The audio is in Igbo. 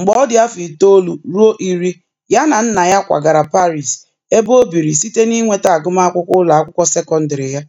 Mgbe ọ dị afọ itoolu ruo iri, ya na nna ya kwagara Paris ebe o biri site n'inweta agụmakwụkwọ ụlọ akwụkwọ sekọndịrị ya.